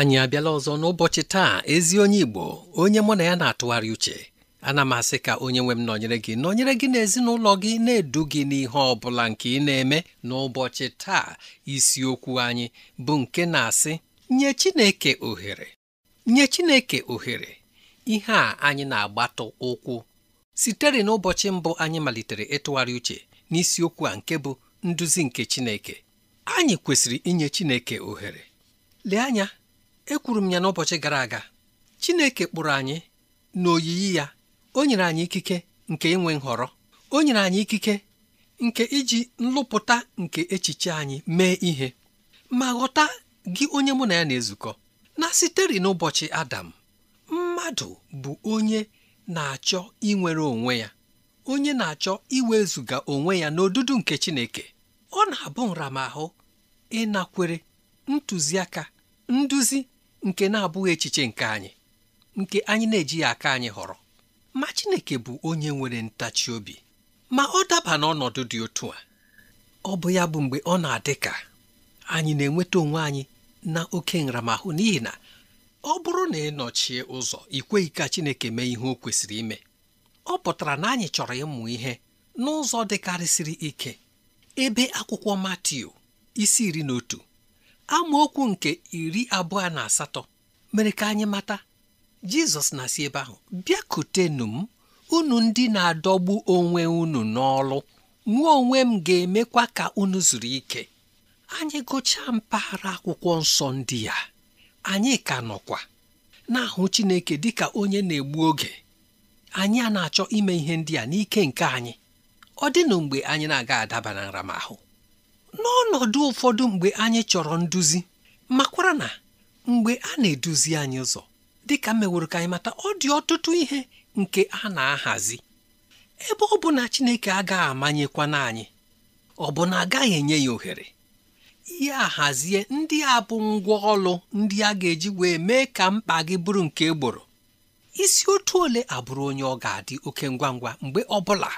anyị abịala ọzọ n'ụbọchị taa ezi onye Igbo onye mụ na ya na-atụgharị uche ana m asị ka onye nwe m nọnyere gị nọnyere gị na ezinụlọ gị na-edu gị n'ihe ọ bụla nke ị na-eme n'ụbọchị taa isiokwu anyị bụ nke na-asị nye Chineke ohere nye Chineke ohere ihe a anyị na-agbatụ ụkwụ sitere n'ụbọchị mbụ anyị malitere ịtụgharị uche n'isiokwu a nke bụ nduzi nke Chineke anyị kwesịrị inye Chineke ohere lee anya ekwuru m ya n'ụbọchị gara aga Chineke kpụrụ anyị n'oyiyi ya o nyere anyị ikike nke inwe nhọrọ o nyere anyị ikike nke iji nlụpụta nke echiche anyị mee ihe ma ghọta gị onye mụ na ya na-ezukọ na sitere n'ụbọchị Adam mmadụ bụ onye na-achọ inwere onwe ya onye na-achọ iwezuga onwe ya n'odudu nke Chineke ọ na-abụ nramahụ ịnakwere ntụziaka nduzi nke na-abụghị echiche nke anyị nke anyị na-ejighị aka anyị họrọ ma Chineke bụ onye nwere ntachi obi ma ọ daba n'ọnọdụ dị otu a ọ bụ ya bụ mgbe ọ na-adị ka anyị na-enweta onwe anyị na oke nramahụ n'ihi na ọ bụrụ na ị ụzọ ikweghị ka Chineke mee ihe o kwesịrị ime ọ pụtara na anyị chọrọ ịmụ ihe n'ụzọ dịkarịsịrị ike ebe akwụkwọ Matiu isi iri na otu amaokwu nke iri abụọ na asatọ mere ka anyị mata jizọs na-asị ebe ahụ bịakutenu m unu ndị na-adọgbu onwe unu n'ọlụ mụ onwe m ga-emekwa ka unu zuru ike anyị gụchaa mpaghara akwụkwọ nsọ ndị ya anyị ka nọkwa na-ahụ Chineke dịka onye na-egbu oge anyị a na-achọ ime ihe ndị a n'ike nke anyị ọ dị mgbe anyị na-aga adaba na nramahụ n'ọnọdụ ụfọdụ mgbe anyị chọrọ nduzi makwara na mgbe a na-eduzi anyị ụzọ dịka meworo ka anyị mata ọ dị ọtụtụ ihe nke a na-ahazi ebe ọ bụ na Chineke agaghị amanyekwana anyị ọ bụ na agaghị enye ya ohere ya ahazie ndị a bụ ngwa ọlụ ndị a ga-eji wee mee ka mkpa gị bụrụ nke egboro isi otu ole abụrụ onye ọ ga-adị oke ngwa ngwa mgbe ọ bụla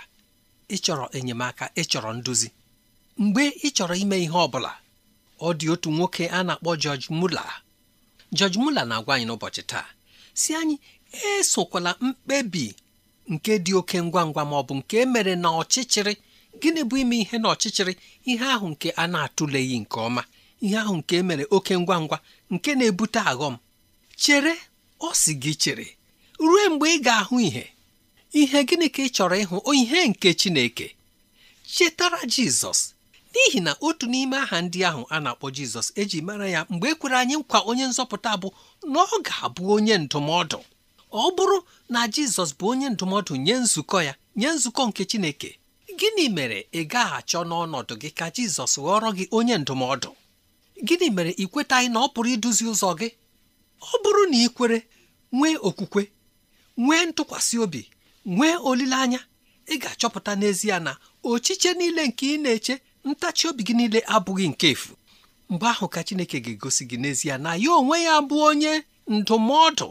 ịchọrọ enyemaka ịchọrọ nduzi mgbe ị chọrọ ime ihe ọ bụla ọ dị otu nwoke a na-akpọ jọj mula jọj mula na-agwa anyị n'ụbọchị taa si anyị esokwala mkpebi nke dị oke ngwa ngwa ma ọ bụ nke mere na ọchịchịrị gịnị bụ ime ihe na ọchịchịrị ihe ahụ nke a na-atụleghị nke ọma ihe ahụ nke e mere oke ngwa ngwa nke na-ebute aghọm chere ọ sị gị chere ruo mgbe ị ga-ahụ ihe ihe gịnị ka ị chọrọ ịhụ ihe nke Chineke chetara Jizọs n'ihi na otu n'ime aha ndị ahụ a na-akpọ jizọs eji mara ya mgbe e kwere anyị nkwa onye nzọpụta bụ na ọ ga-abụ onye ndụmọdụ ọ bụrụ na jizọs bụ onye ndụmọdụ nye nzukọ ya nye nzukọ nke chineke gịnị mere ị gaghị achọ n'ọnọdụ gị ka jizọs ghọrọ gị onye ndụmọdụ gịnị mere ị kwetaghị na ọ pụrụ iduzi ụzọ gị ọ bụrụ na ị kwere nwee okwukwe nwee ntụkwasị obi nwee olileanya ị ga-achọpụta n'ezie na ochiche niile nke ị na-eche ntachi obi gị niile abụghị nke efu mgbe ahụ ka Chineke ga-egosi gị n'ezie na ya onwe ya bụ onye ndụmọdụ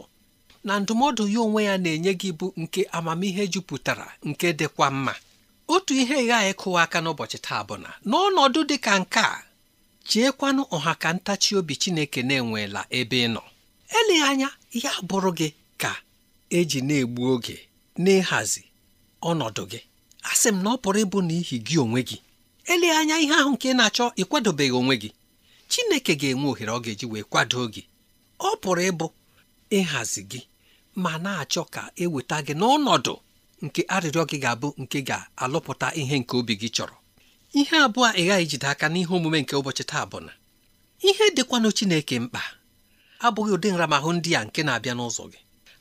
na ndụmọdụ ya onwe ya na-enye gị bụ nke amamihe jupụtara nke dịkwa mma otu ihe ghaghị kụwa aka n'ụbọchị taa bụ na n'ọnọdụ dị ka nke a cheekwanụ ọha ka ntachi obi Chineke na-enweela ebe ị nọ eleghị anya ya bụrụ gị ka eji na-egbu oge n'ịhazi ọnọdụ gị asị m na ọ pụrụ ịbụ n'ihi gị onwe gị elee anya ihe ahụ nke ị na-achọ ịkwadobeghị onwe gị chineke ga-enwe ohere ọ ga-eji wee kwado gị ọ pụrụ ịbụ ịhazi gị ma na-achọ ka eweta gị n'ọnọdụ nke arịrịọ gị ga-abụ nke ga-alụpụta ihe nke obi gị chọrọ ihe abụọ ị gaghị ijide aka n'ihe omume nke ụbọchị taa bụ na ihe dịkwanụ chineke mkpa abụghị ụdị nramahụ ndị a nke na-abịa n'ụzọ gị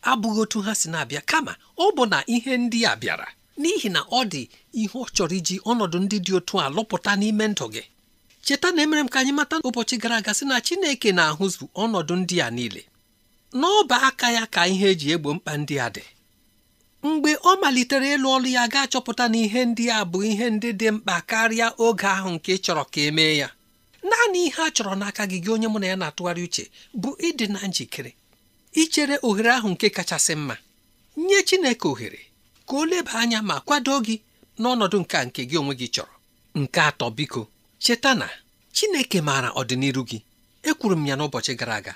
abụghị otu ha si na-abịa kama ọ bụ na ihe ndị a bịara n'ihi na ọ dị ihe ọ chọrọ iji ọnọdụ ndị dị otu a lụpụta n'ime ndụ gị cheta na emere m ka anyị mata ụbọchị gara aga sị na Chineke na-ahụzụ ọnọdụ ndị a niile n'ọba aka ya ka ihe eji egbo mkpa ndị a dị mgbe ọ malitere ịlụ ọrụ ya ga-achọpụta na ihe ndị a bụ ihe ndị dị mkpa karịa oge ahụ nke ị chọrọ ka emee ya naanị ihe a chọrọ n'aka gị gị onye mụ na ya na-atụgharị uche bụ ịdị na njikere ichere ohere ahụ nke kachasị mma nye Chineke ohere ka o leba anya ma kwado gị n'ọnọdụ nke nke gị onwe gị chọrọ nke atọ biko cheta na Chineke maara ọdịnihu gị ekwuru m ya n'ụbọchị gara aga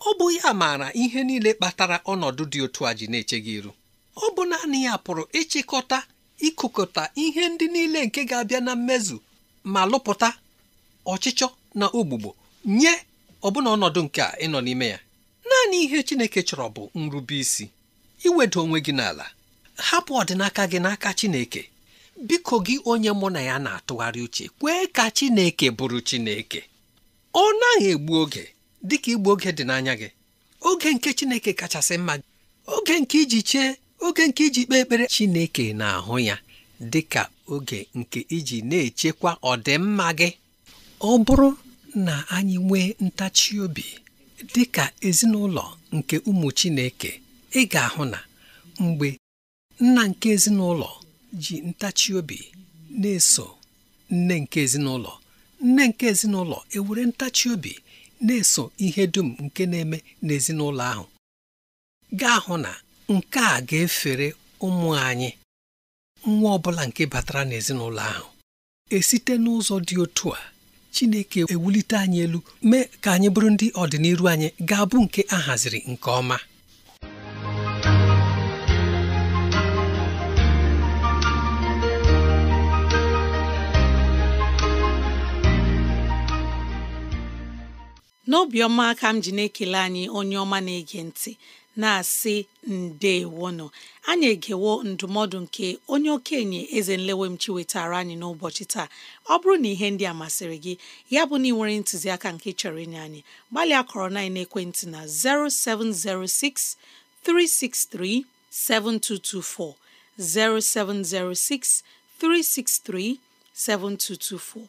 ọ bụ ya maara ihe niile kpatara ọnọdụ dị otu a ji na-eche gị iru ọ bụ naanị ya pụrụ ịchịkọta ịkụkọta ihe ndị niile nke ga-abịa na mmezu ma lụpụta ọchịchọ na ogbugbo nye ọbụna ọnọdụ nke a ịnọ n'ime ya naanị ihe Chineke chọrọ bụ nrube isi iwedo onwe gị n'ala hapụ ọdịnaka gị n'aka Chineke biko gị onye mụ na ya na-atụgharị uche kwee ka Chineke bụrụ Chineke ọ naghị egbu oge dịka igbu oge dị n'anya gị oge nke Chineke kachasị mma oge nke iji chee oge nke iji kpee ekpere Chineke na-ahụ ya dị ka oge nke iji na-echekwa ọdịmma gị ọ bụrụ na anyị nwee ntachi obi dị ka ezinụlọ nke ụmụ Chineke ị ga-ahụ na mgbe nna nke ezinụlọ ji ntachi obi na-eso nne nke ezinụlọ nne nke ezinụlọ ewere ntachi obi na-eso ihe dum nke na-eme n'ezinụlọ ahụ gaa hụ na nke a ga-efere ụmụ anyị nwa ọbụla nke batara n'ezinụlọ ahụ esite n'ụzọ dị otu a Chineke ewulite anyị elu mee ka anyị bụrụ ndị ọdịnihu anyị ga-abụ nke ahaziri nke ọma n'obiọma ka m ji na-ekele anyị onye ọma na-ege ntị na-asị ndeewono anyị egewo ndụmọdụ nke onye okenye eze m wetara anyị n'ụbọchị taa ọ bụrụ na ihe ndị a masịrị gị ya bụ na ị nwere ntụziaka nke chọrọ inye anyị gbalịa kọrọ na ekwentị na 0706 363 7224 0706 363 7224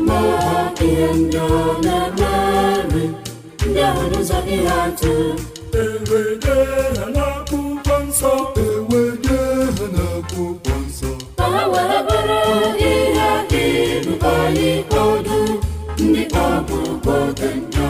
ma ihe ndị ọ na ahụ n'ụzọ ihe atụ ewede ha n'akwụkwọ nsọ ewede ha n'akwụkwọ nsọ ka ha were bụrụ ihe iru anyị ọdụ ndị ọbụ oge ndọ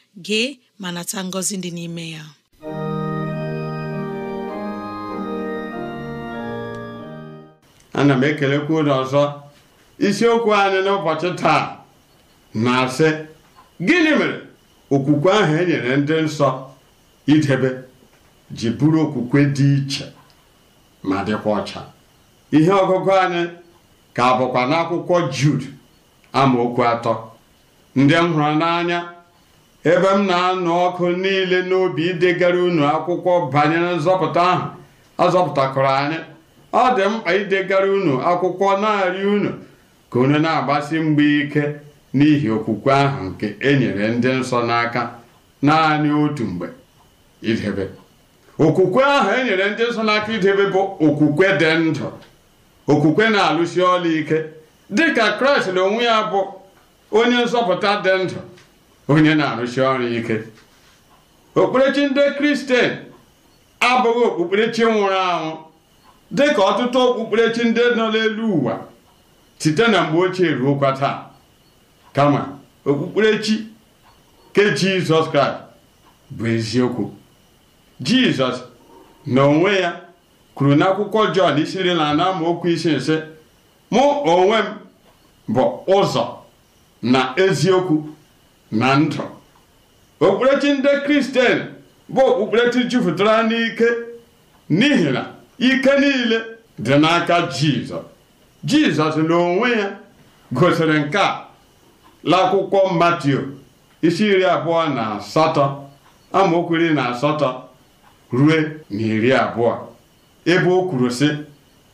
gee ma nata ngọzi dị n'ime ya ana m ekelekwu ụlọ ọzọ isiokwu anyị n'ụbọchị taa na-asị gịnị mere okwukwe ahụ enyere ndị nsọ idebe ji bụrụ okwukwe dị iche ma dịkwa ọcha ihe ọgụgụ anyị ka bụkwa n'akwụkwọ Jud amaokwu atọ ndị m hụrụ n'anya ebe m na-anụ ọkụ niile n'obi idegara unu akwụkwọ banyere nzọpụta ahụ azọpụtakọrọ anyị ọ dị mkpa idegara unu akwụkwọ narị unu ka unu na-agbasi mgbe ike n'ihi okwukwe ahụ nke e nyere ndị nsọ n'aka naanị otu mgbe idebe okwukwe ahụ e nyere ndị nsọ n'aka idebe bụ okwukwe dị ndụ okwukwe na-alụsi ọlụ ike dịka kraịst na onwe ya bụ onye nzọpụta dị ndụ onye na-arụsi ọrụ ike okpukperechi ndị kristian abụghị okpukperechi nwụrụ anwụ dị ka ọtụtụ okpukperechi ndị nọ n'elu ụwa site na mgbe ochie ruokwa taa kama okpukperechi ke jizọs kraịst bụ eziokwu jizọs na onwe ya kwuru n'akwụkwọ jọn isi na anọ okwu isi nsị mụ onwe m bụ ụzọ na eziokwu na ndụ okpukperechi ndị kristian bụ okpukperechi jupụtara n'ike n'ihi na e ike niile dị n'aka jizọs jizọs n'onwe ya gosiri nke a l'akwụkwọ Matio, isi iri abụọ na asatọ amaokwu na asatọ ruo na iri abụọ ebe o kwuru sị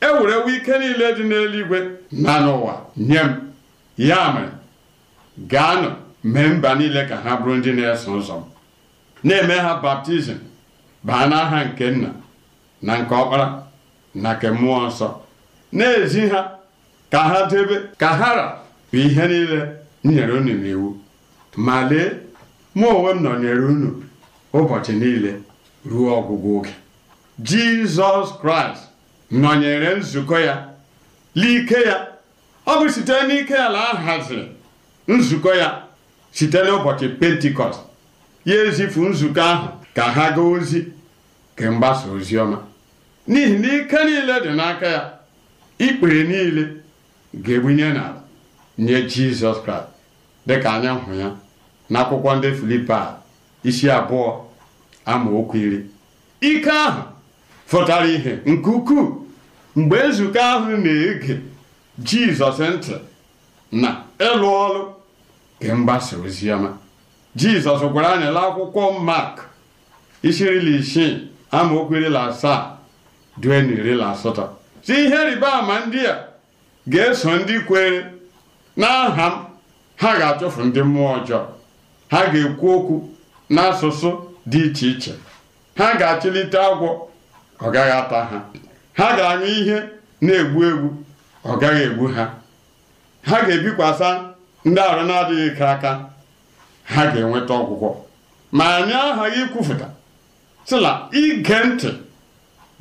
ewerewo ike niile dị n'eluigwe na n'ụwa nye m ya mere gaanụ mee mba niile ka ha bụrụ ndị na-eso ụzọ m na-eme ha baptizim baa n'aha nke nna na nke ọkpara na nke mmụọ nsọ na-ezi ha ka ha debe ka hara bụ ihe niile nyere unu n'iwu ma lee mụ onwe m nọnyere unu ụbọchị niile ruo ọgwụgwụ oge jizọs kraịst nọnyere nzukọ ya l'ike ya ọ bụ site n'ike ala ahaziri nzukọ ya site n'ụbọchị pentikọst ya ezifu nzukọ ahụ ka ha gaa ozi kemgbasa ozi ọma n'ihi na ike niile dị n'aka ya ikpere niile ga-ebunye n'ala nye jizọs dị ka anya hụ ya na akwụkwọ ndị filipa isi abụọ amaokwu iri ike ahụ fụtara ihe nke ukwuu mgbe nzukọ ahụ na-ege jizọs ntị na ịlụ ọrụ nke oziọma jizọs gwara anyị la akwụkwọ mak isi isii amaokwu iri asaa due na iri asatọ si ihe rịba ama ndị a ga-eso ndị kwere n'aha m ha ga-achụfu ndị mmụọ ọjọọ ha ga-ekwu okwu n'asụsụ dị iche iche ha ga-achịlite agwọ ọ gaghị ata ha ha ga anyụ ihe na-egbu egbu ọ gaghị egbu ha ha ga-ebikwasa ndị arụ na-adịghị ike aka ha ga-enweta ọgwụgwọ ma anyị aghaghị ikwufụta sila ige ntị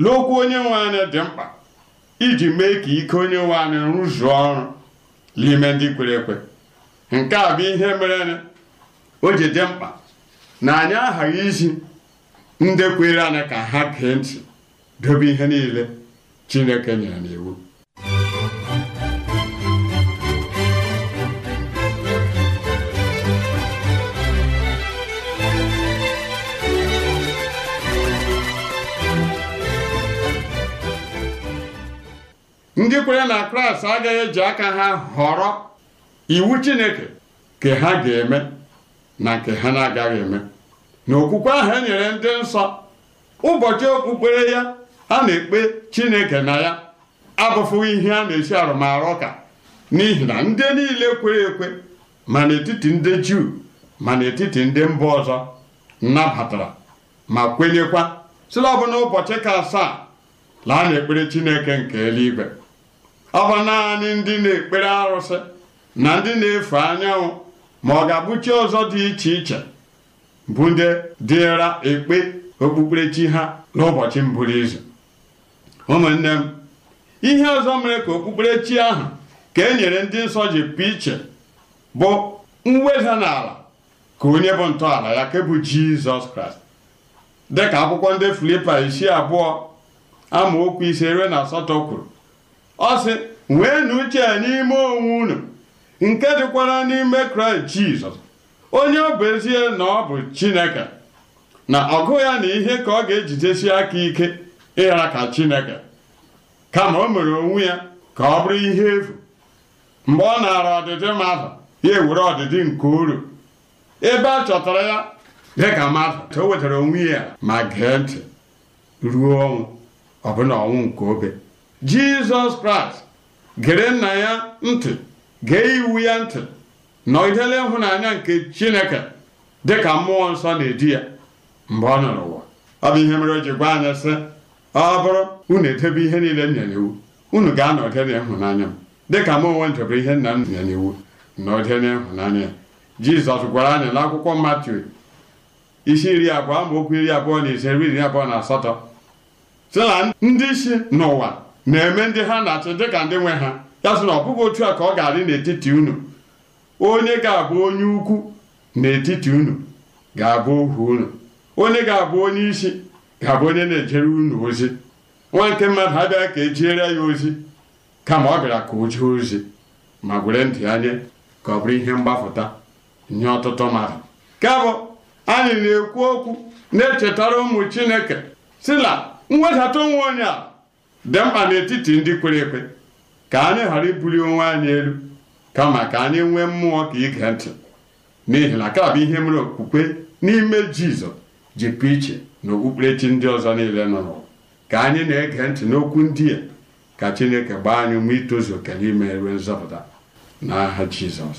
n'okwu onye nwe anyị dị mkpa iji mee ka ike onye nwe anyị rụzuo ọrụ n'ime ndị kwere ekwe nke a bụ ihe mere o ji dị mkpa na anyị aghaghị iji ndị kwere anyị ka ha gee ntị dobe ihe niile Chineke nyere n'iwu ndị kwere na kraịst agaghị eji aka ha họrọ iwu chineke ka ha ga-eme na nke ha na-agaghị eme na okwukwe ahụ e nyere ndị nsọ ụbọchị okpukpere ya a na-ekpe chineke na ya abụfụghị ihe a na-esi arụmarụ ọka n'ihi na ndị niile kwere ekwe ma n'etiti ndị juu ma n'etiti ndị mba ọzọ nabatara ma kwenyekwa sila ọbụna ụbọchị ka asaa laa ekpere chineke nke eluigwe ọ bụ naanị ndị na-ekpere arụsị na ndị na-efe anyanwụ ma ọ ga abụchi ọzọ dị iche iche bụ ndị dịra ekpe okpukperechi ha n'ụbọchị mbụrụ izu ụmụnne m ihe ọzọ mere ka okpukperechi ahụ ka e nyere ndị nsọ ji pụ iche bụ mweda n'ala ka onye bụ ntọala ya ke bụ jizọs kraịst dịka akwụkwọ ndị filipa isi abụọ amaokwu ise ruo na asatọ kwuru ọ sị n'uche uche n'ime onwe unu nke dịkwara n'ime kraịst jizọs onye ọ bụ ezie na ọ bụ chineke na ọgụ ya na ihe ka ọ ga-ejidesi aka ike ịghara ka chineke kama o mere onwe ya ka ọ bụrụ ihe efu mgbe ọ naara ọdịdị mmadụ ya ewere ọdịdị nke uru ebe a chọtara ya dịka mmadụ o wetara onwe ya ma gee ntị ruo ọnwụ ọbụna ọnwụ nke obe jizọs kraịst gere nna ya ntị gee iwu ya ntị nọgidela ịhụnanya nke chineke dịka mmụọ nsọ na edi ya mgbe ọ nọ n'ụwa ọ bụ ihe mere o ji gwa anya sị ọ bụrụ unu edebe ihe niile m nyere iwu unu ga-anọgide n'ịhụnanya m dịka m onwe ndebere ihe nna m nyere iwu nọgide n'ịhụnanya ya jizọs gwara anyị n'akwụkwọ akwụkwọ isi iri abụọ okwu iri abụọ na ise iri abụọ na asatọ sị na ndị isi n'ụwa na-eme ndị ha na dị dịka ndị nwe ha ya sị na ọ bụghị otu a ka ọ ga-adị n'etiti unu onye ga-abụ onye ukwu n'etiti unu ga-abụ ohu unu onye ga-abụ onye isi ga-abụ onye na-ejere unu ozi nwa nke mmadụ abịaghị ka ejiere ya ozi kama ọ bịara ka o jee ozi ma were ndụ ya nye ka ọ bụrụ ihe mgbapụta nye ọtụtụ mmadụ ka bụ anyị na-ekwu okwu na-echetara ụmụ chineke si na mwedata onwe onye a dị mkpa n'etiti ndị kwere ekwe ka anyị ghara ibuli onwe anyị elu kama ka anyị nwee mmụọ ka ige ntị n'ihi na bụ ihe mere okpukpe n'ime jizọs ji pụ iche na okpukperechi ndị ọzọ niile nọ n'ụwa ka anyị na-ege ntị n'okwu ndị a ka chineke gbaa anyị ma itozu oke n'ime ime nzọpụta n'aha jizọs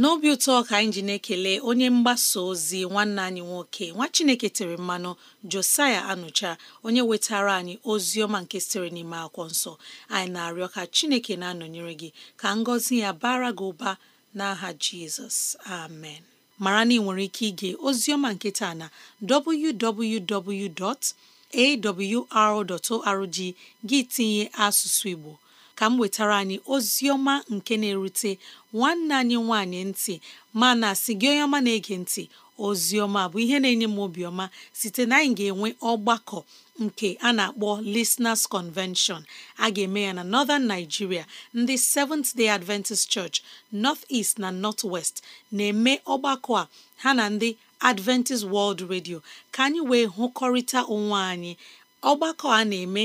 n'obi ụtọ ka anyị ji na-ekele onye mgbasa ozi nwanne anyị nwoke nwa chineke tere mmanụ josaya anụcha onye wetara anyị ozi ọma nke sitere n'ime akwụkwọ nsọ anyị na-arịọ ka chineke na-anọnyere gị ka ngọzi ya bara gị ụba n'aha jizọs amen mara na ị nwere ike ige ozi ọma na www.awr.org gị tinye asụsụ igbo ka m wetara anyị Ozioma nke na-erute nwanne anyị nwanyị ntị mana si gị onye ọma na-ege ntị Ozioma bụ ihe na-enye m obiọma site na anyị ga-enwe ọgbakọ nke a na-akpọ Listeners Convention a ga-eme ya na Northern Nigeria ndị Seventh Day Adventist Church North East na North West na-eme ọgbakọ a ha na ndị Adventist World Radio ka anyị wee hụkọrịta onwe anyị ọgbakọ a na-eme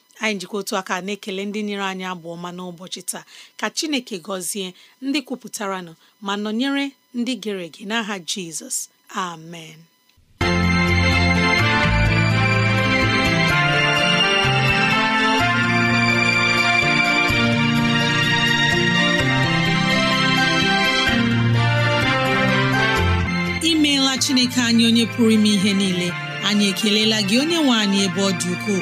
anyị jikọ otu aka na-ekele ndị nyere anyị abụ ọma n'ụbọchị taa ka Chineke gọzie ndị kwupụtaranụ ma nọnyere ndị gere ege n'aha Jizọs amen imeela Chineke anyị onye pụrụ ime ihe niile anyị ekelela gị onye nwe anyị ebe ọ dị ukwuu